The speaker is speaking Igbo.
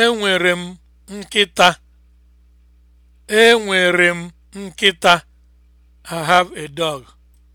Enwere m nkịta. Enwere m nkịta. I have a dog.